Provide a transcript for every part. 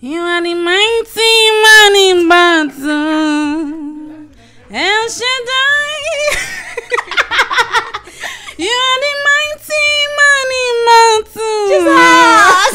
You are the mighty man in battle. El Shaddai. you are the mighty man in battle. Jesus.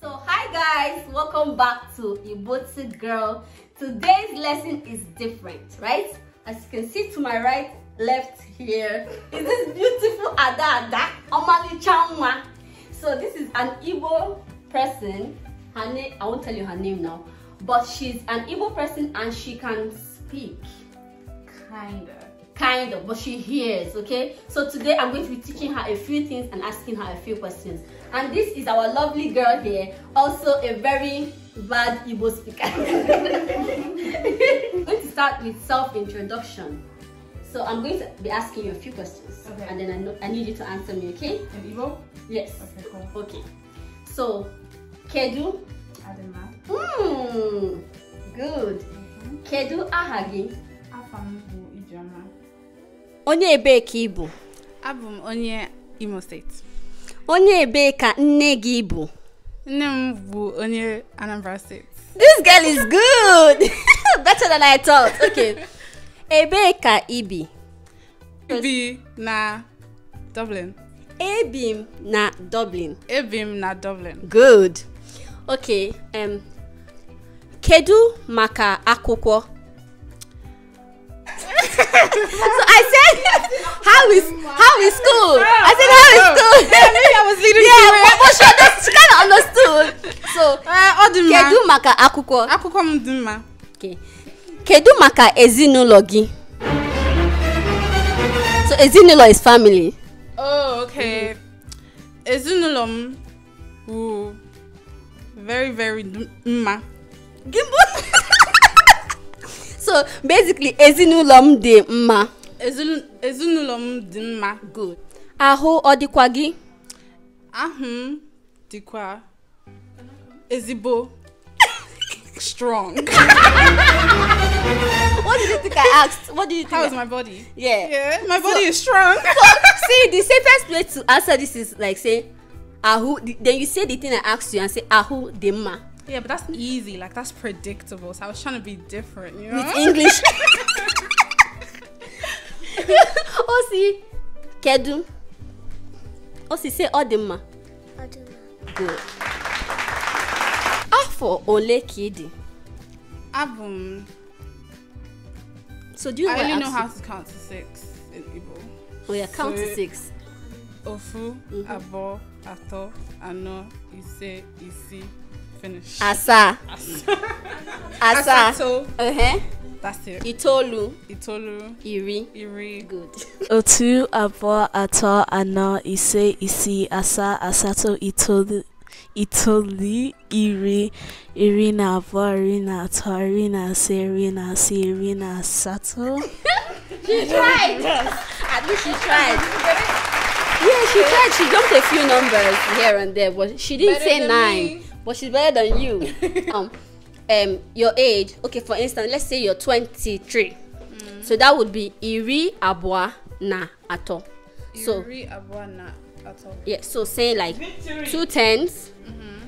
so hi guys, welcome back to Ibotu Girl Today's lesson is different, right? As you can see to my right, left here is this beautiful Ada Ada Omali Chanwa. So this is an Igbo person. Her name, I won't tell you her name now, but she's an Igbo person and she can speak, kind of kind of, but she hears, okay? So today I'm going to be teaching her a few things and asking her a few questions. And this is our lovely girl here, also a very bad Igbo speaker. I'm going to start with self-introduction. So I'm going to be asking you a few questions. Okay. And then I, know, I need you to answer me, okay? In Igbo? Yes. Okay, cool. Okay. So, Kedu? Adema. Mmm, good. Mm -hmm. Kedu aha gị? onye ebee ka ị bụ abụ m onye imo steeti onye ebee ka nne gị bụ nne m bụ onye anambra steeti this girl is good better than i thought okay ebee ka ị bi bi na dublin ebi m na dublin ebi m na dublin good okay um, kedu maka akwụkwọ so I said, "How is how is school?" I said, "How is school?" yeah, maybe I was leading. Yeah, but, but she, understood, she kind of understood. So, uh, ọ dị Kedu maka akuko? Akuko m dị Okay. Kedu maka ezinụlọ gị? So ezinụlọ is family. Oh, okay. Ezinụlọ m wụ very very mma. Gimbo. so basically ezinụlọ m dị mma ezinụlọ m dị mma good ahụ ọ dịkwa gị ahụ m dịkwa ezigbo strong. what did you think I asked? What did you think? How is my body? Yeah. Yeah, my body so, is strong. so, see, the safest way to answer this is like say, Ahu. Then you say the thing I asked you and say, Ahu ma." Yeah, but that's easy. Like that's predictable. So I was trying to be different, you know. With English. Osi, kedu. Osi say odima. Odima. Good. Afọ ole kidi. ị dị? Abụ So do you I only know how to count to six in Igbo. Oh yeah, count to six. Ofu, mm-hmm. abo, ato, ano, ise, isi, Finish. Asa. Asa. Asato. Uh-huh. That's it. Itolu. Itolu. Iri. Iri. Good. Otu, abo ato anọ, ise, isi asa asato itolu, itolu, iri, iri na abụọ, iri na atọ, iri na ise, iri na asii, iri na asatọ. She tried. At least she tried. Yeah, she tried. She jumped a few numbers here and there, but she didn't Better say nine. Me. but she's better than you um, um your age okay for instance let's say you're 23 mm. so that would be iri abwa na ato so iri abwa na ato yeah so say like Victory. two tens mm-hmm.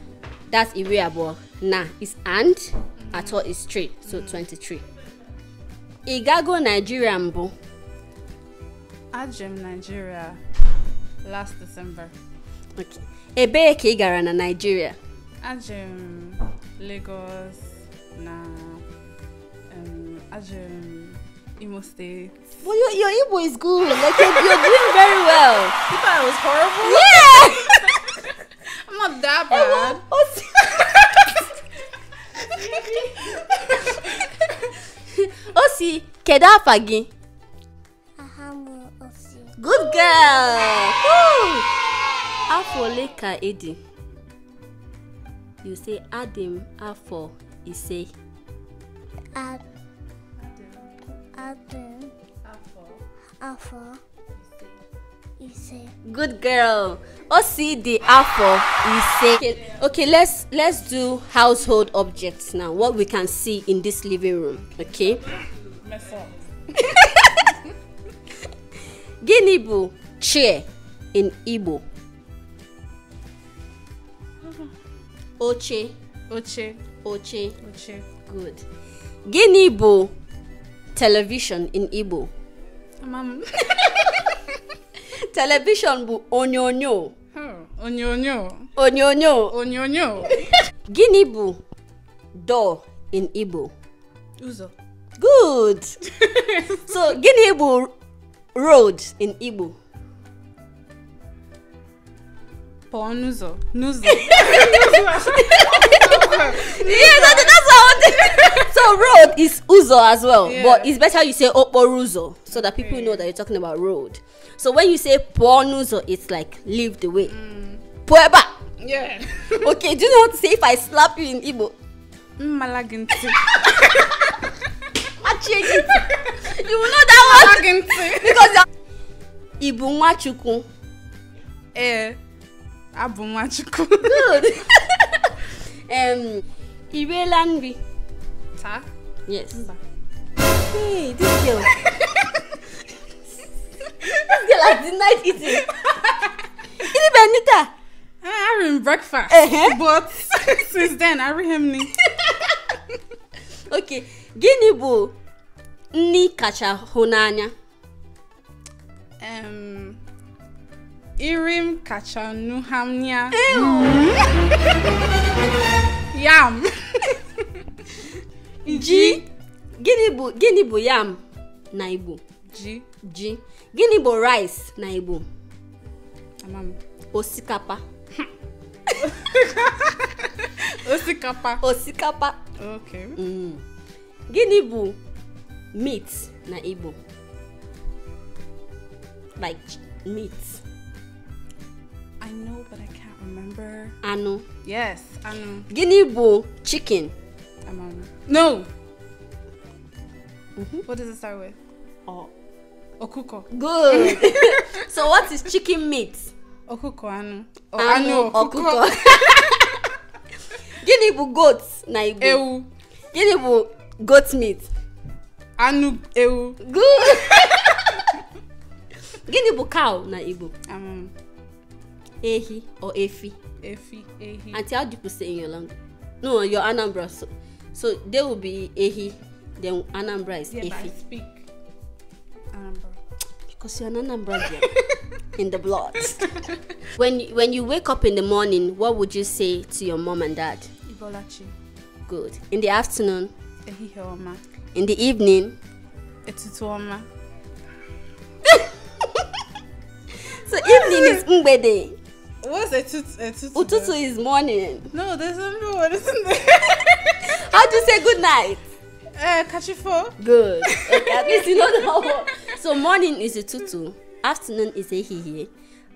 that's iri abwa na is and mm-hmm. ato is three so mm-hmm. 23 igago nigeria I ajem nigeria last december okay ebee ka ị na nigeria aje Lagos na um, aje Imo State. Well, your, your Igbo is good. Like you're, you're doing very well. You thought I was horrible. Yeah. I'm not that bad. o si kedu afa gị good girl afọ ole ka ị dị you say Adam afọ ise. Adam. Adam. Afọ. Afọ. Ise. Good girl. the afọ ise. Okay, okay, let's let's do household objects now. What we can see in this living room, okay? Mess up. Gịnị chair in Igbo? oche oche oche oche good gịnị bụ television in igbo television bụ onyonyo onyonyo onyonyo onyonyo gịnị bụ door in igbo ụzọ good so gịnị bụ road in igbo Ponuzo. Nuzo. yeah, that, that's how. so road is uzo as well, yeah. but it's better you say oporuzo so that people okay. know that you're talking about road. So when you say ponuzo, it's like leave the way. Mm. Pueba. Yeah. okay. Do you know how to say if I slap you in Igbo? Malaginti. Machiegiti. You will know that one. Malaginti. because. Ibu Nwachukwu. Eh. abụ Nwachukwu good um, i riela nri taa yes hey this girl this girl has denied eating ini benita ah, I had breakfast but since then I him ni okay gịnị bụ nri kacha hụ n'anya um, iri m kacha nuhamnia yam ji gịnị bụ gịnị bụ yam na igbo ji ji gịnị bụ rice na igbo osikapa osikapa osikapa mm. gịnị bụ meat na igbo like meat I know, but I can't remember. Anu. Yes, anu. Guinea bull chicken. Amanu. No. Mm -hmm. What does it start with? Oh. Okuko. Good. so what is chicken meat? Okuko anu. Oh, anu, anu okuko. Guinea bụ goats na Igbo? Ewu. Guinea bụ goat meat? Anu ewu. Good. Guinea bụ cow na Igbo? Um. Ehi or Efi. Efi, Ehi. And how do you people say in your language? No, your Anambra. So, so they will be Ehi, then Anambra is yeah, Efi. But I speak Anambra. Because you're an Anambra in the blood. when, when you wake up in the morning, what would you say to your mom and dad? Ibolachi. Good. In the afternoon? Ehiheoma. In the evening? Etutuoma. so evening is day. What's a, tut- a tutu? morning. No, there's another one, isn't there? How do you say good night? Uh, eh, kachifo. Good. Okay, at least you know the whole. So morning is a tutu, afternoon is a hihi,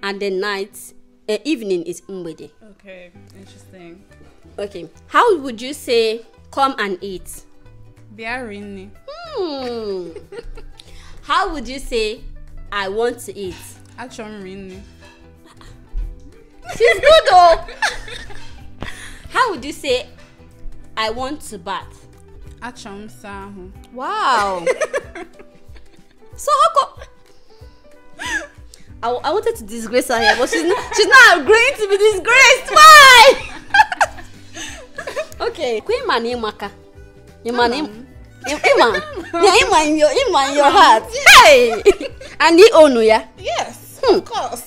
and then night, uh, evening is umbede. Okay, interesting. Okay, how would you say come and eat? Biarini. Hmm. how would you say I want to eat? Achomrini. she's good oh how would you say i want to bat? achọrọ m ahụ wow so how come I, I wanted to disgrace her here but she's not, she's not agreeing to be disgraced why okay queen man imaka imana ima yeah ima in your ima in your heart hey and he own ya yes hmm. of course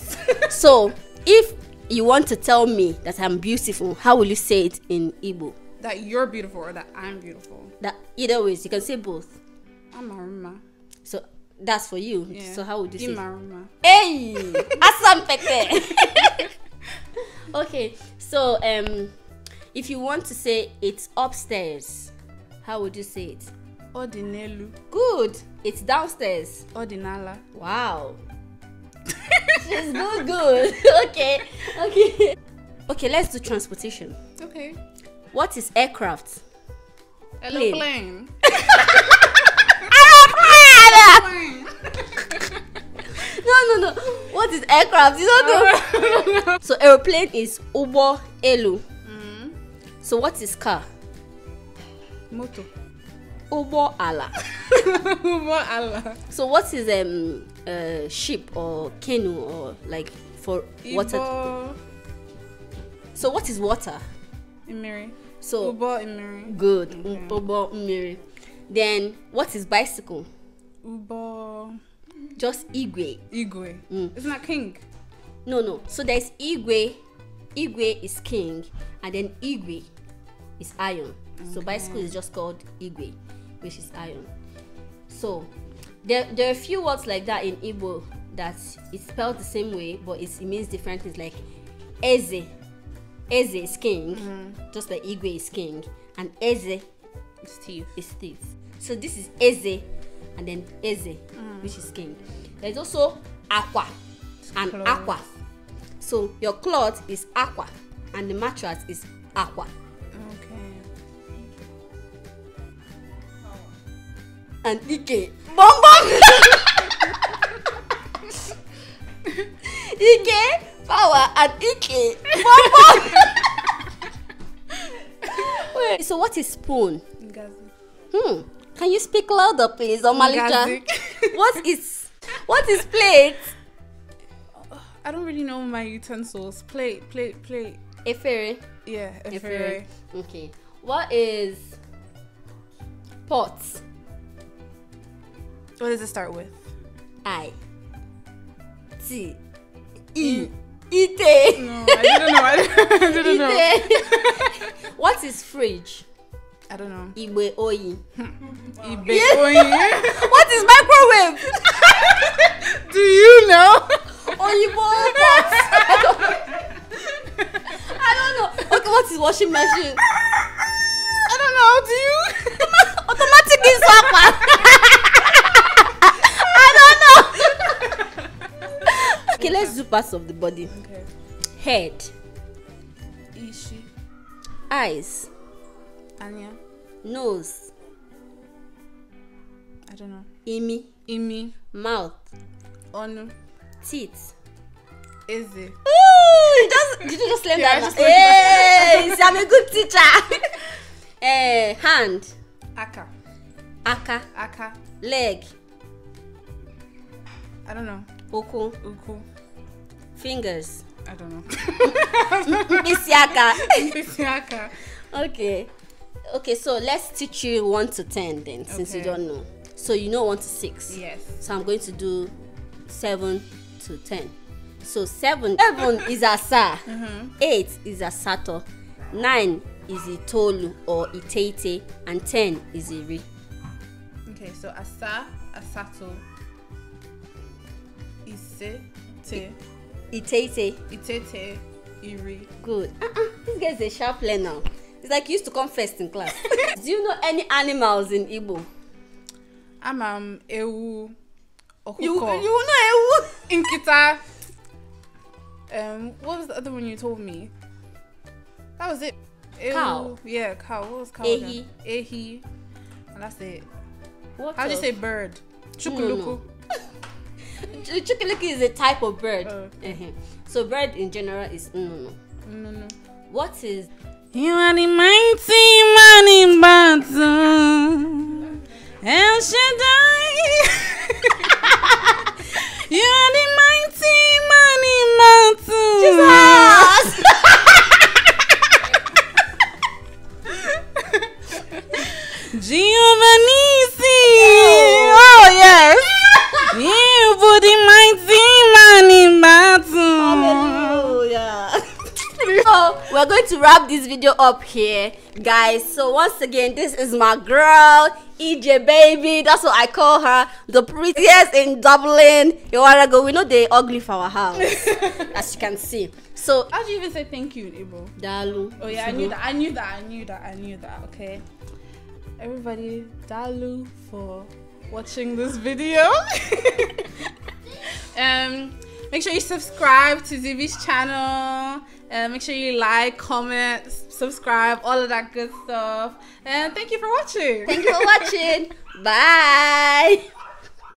so if you want to tell me that I'm beautiful, how will you say it in Igbo? That you're beautiful or that I'm beautiful. That either ways, you can say both. I'm Maruma. So that's for you. Yeah. So how would you say say? Maruma. Hey, asampete. okay, so um, if you want to say it's upstairs, how would you say it? Odinelu. Good. It's downstairs. Odinala. Wow. It's good, good. okay, okay. Okay, let's do transportation. Okay. What is aircraft? Aeroplane. Aeroplane! no, no, no. What is aircraft? You don't know. so aeroplane is Ubo Elu. Mm. So what is car? Motor. Ubo Allah. Ubo Allah. So what is um uh, ship or canoe or like for Ibo... water? So what is water? Imiri. So Ubo imiri. Good. Okay. Ubo imiri. Then what is bicycle? Ubo. Just igwe. Igwe. Mm. Isn't that king? No, no. So there's igwe. Igwe is king, and then igwe is iron. Okay. So bicycle is just called igwe which is iron. So there, there are a few words like that in Igbo that it's spelled the same way, but it, means different things like Eze. Eze is king, mm-hmm. just like Igwe is king, and Eze is thief. is thief. So this is Eze, and then Eze, mm. which is king. There's also Aqua and Aqua. So your cloth is Aqua, and the mattress is Aqua. and Ike. Bum bum! Ike, power, and Ike. Bum bum! Wait, so what is spoon? Hmm. Can you speak louder, please, or Malika? what is what is plate? I don't really know my utensils. Plate, plate, plate. A fairy. Yeah, a fairy. Okay. What is pots? What does it start with? I. T. E. Ite. No, I didn't know. I didn't know. what is fridge? I don't know. Ibe oyi. Ibe oyi. what is microwave? Do you know? Oyibo box. I don't know. I don't know. Okay, what is washing machine? I don't know. Do you? Automatic is parts of the body okay. head ishi eyes anya nose i don't know imi imi mouth Onu. teeth eze Ooh, you just did you just learn yeah, that hey see, i'm a good teacher eh uh, hand aka aka aka leg i don't know ụkwụ ụkwụ Fingers. I don't know. Misiaka. Misiaka. okay. Okay, so let's teach you 1 to 10 then, okay. since you don't know. So you know 1 to 6. Yes. So I'm going to do 7 to 10. So 7, seven is Asa. Mm -hmm. 8 is Asato. 9 is Itolu or Itete. And 10 is Iri. Okay, so Asa, Asato, Ise, Te. Itete. Itete. Iri. Good. Uh-uh. uh-uh. This guy's a sharp learner. It's like he used to come first in class. Do you know any animals in Igbo? I'm um, Ewu. Okuko. You, you know Ewu? kita um, what was the other one you told me? That was it. Cow. Yeah, cow. What was cow? Ehi. Again? Ehi. And that's it. What How do you say bird? Chukuluku. No, no. The Chukiluki is a type of bird. Oh, uh. uh-huh. So bird in general is no, no. What is? You are the mighty man in battle. El Shaddai. video up here guys so once again this is my girl ej baby that's what i call her the prettiest in dublin a while ago we know they ugly for our house as you can see so how do you even say thank you Ibo? dalu oh yeah i knew that i knew that i knew that i knew that okay everybody dalu for watching this video um make sure you subscribe to zivi's channel and uh, make sure you like, comment, subscribe, all of that good stuff. And thank you for watching. Thank you for watching. Bye.